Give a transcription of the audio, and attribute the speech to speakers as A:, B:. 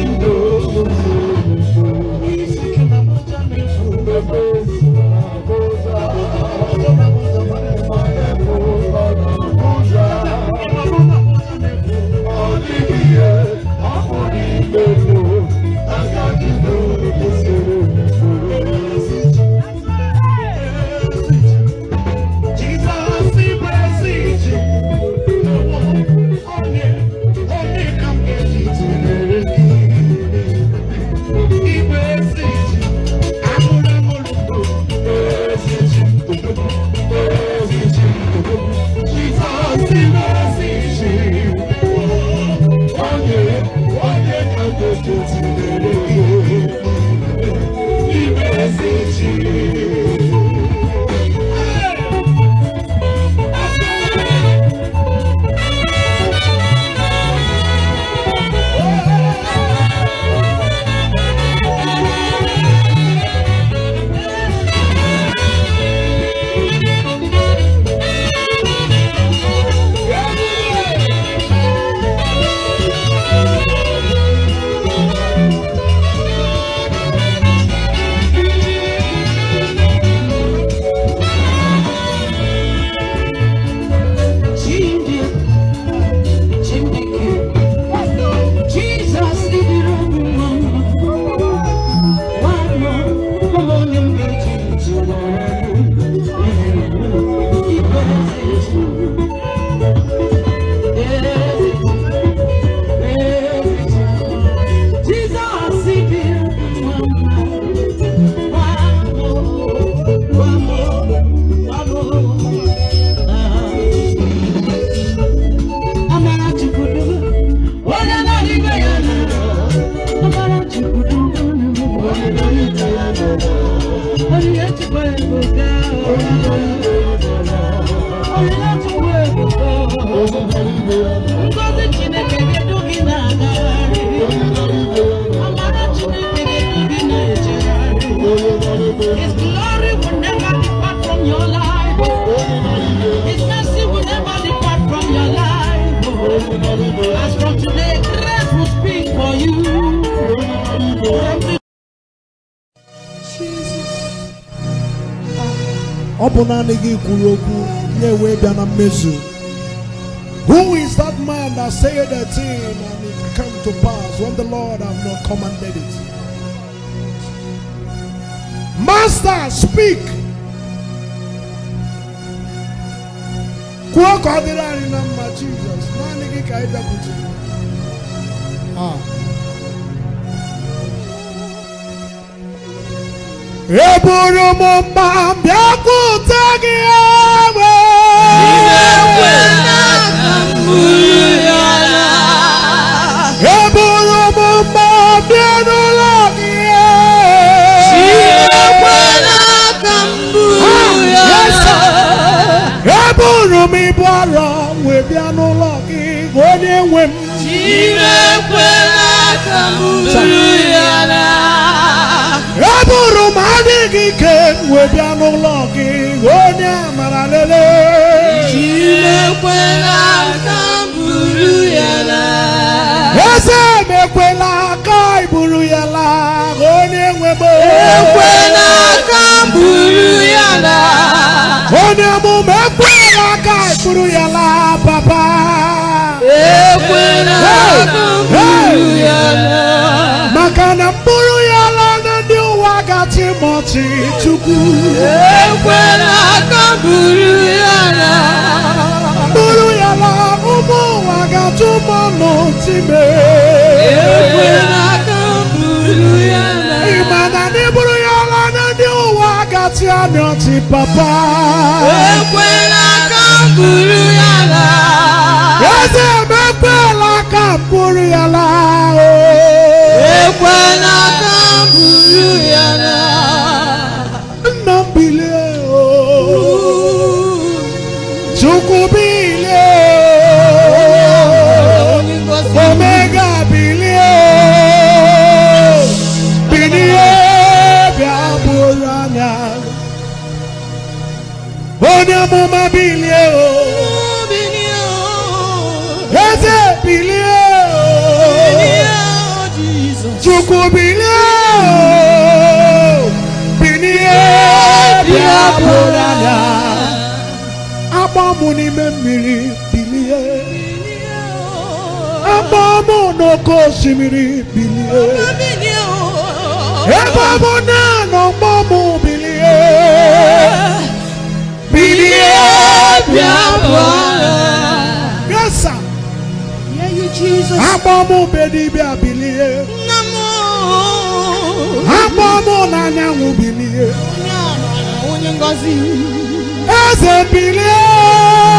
A: in the His glory will never depart from your life His mercy will never depart from your life As from today grace will speak for you
B: ọ bụ naanị gị kwuru okwu ya wee bịa na mmezu Who is that man that said a thing and it come to pass when the Lord have not commanded it? Master, speak. kwuo ka n'ime ekwela ka m buru ya n'agha eburu m adịghị ike wee bịa n'ụlọ gị onye amara lele jiri ekwela ka m buru ya n'agha eze m ekwela ka ị ya n'agha onye nwebe ekwela ka m buru ya n'agha onye mụme ekwela ka ị buru ya n'agha papa ka bụrụ ya ala na ndị ụwa gachi mọchi chukwu ekwela ka bụrụ ya ala bụrụ ya ala ụmụ ụwa gachi ụmụ n'otime ekwela ka bụrụ ya ala ịma na ndị bụrụ ya ala na ndị ụwa gachi amịọchi papa ekwela ka bụrụ m n'ime mmiri bilie akpọ m n'oke osimiri bilie ebe ọ oh. bụ na n'ọgbọ m bilie bilie bịa bụọ gasa akpọ m bedibịa bilie akpọ m oh. n'anyanwụ bilie eze bilie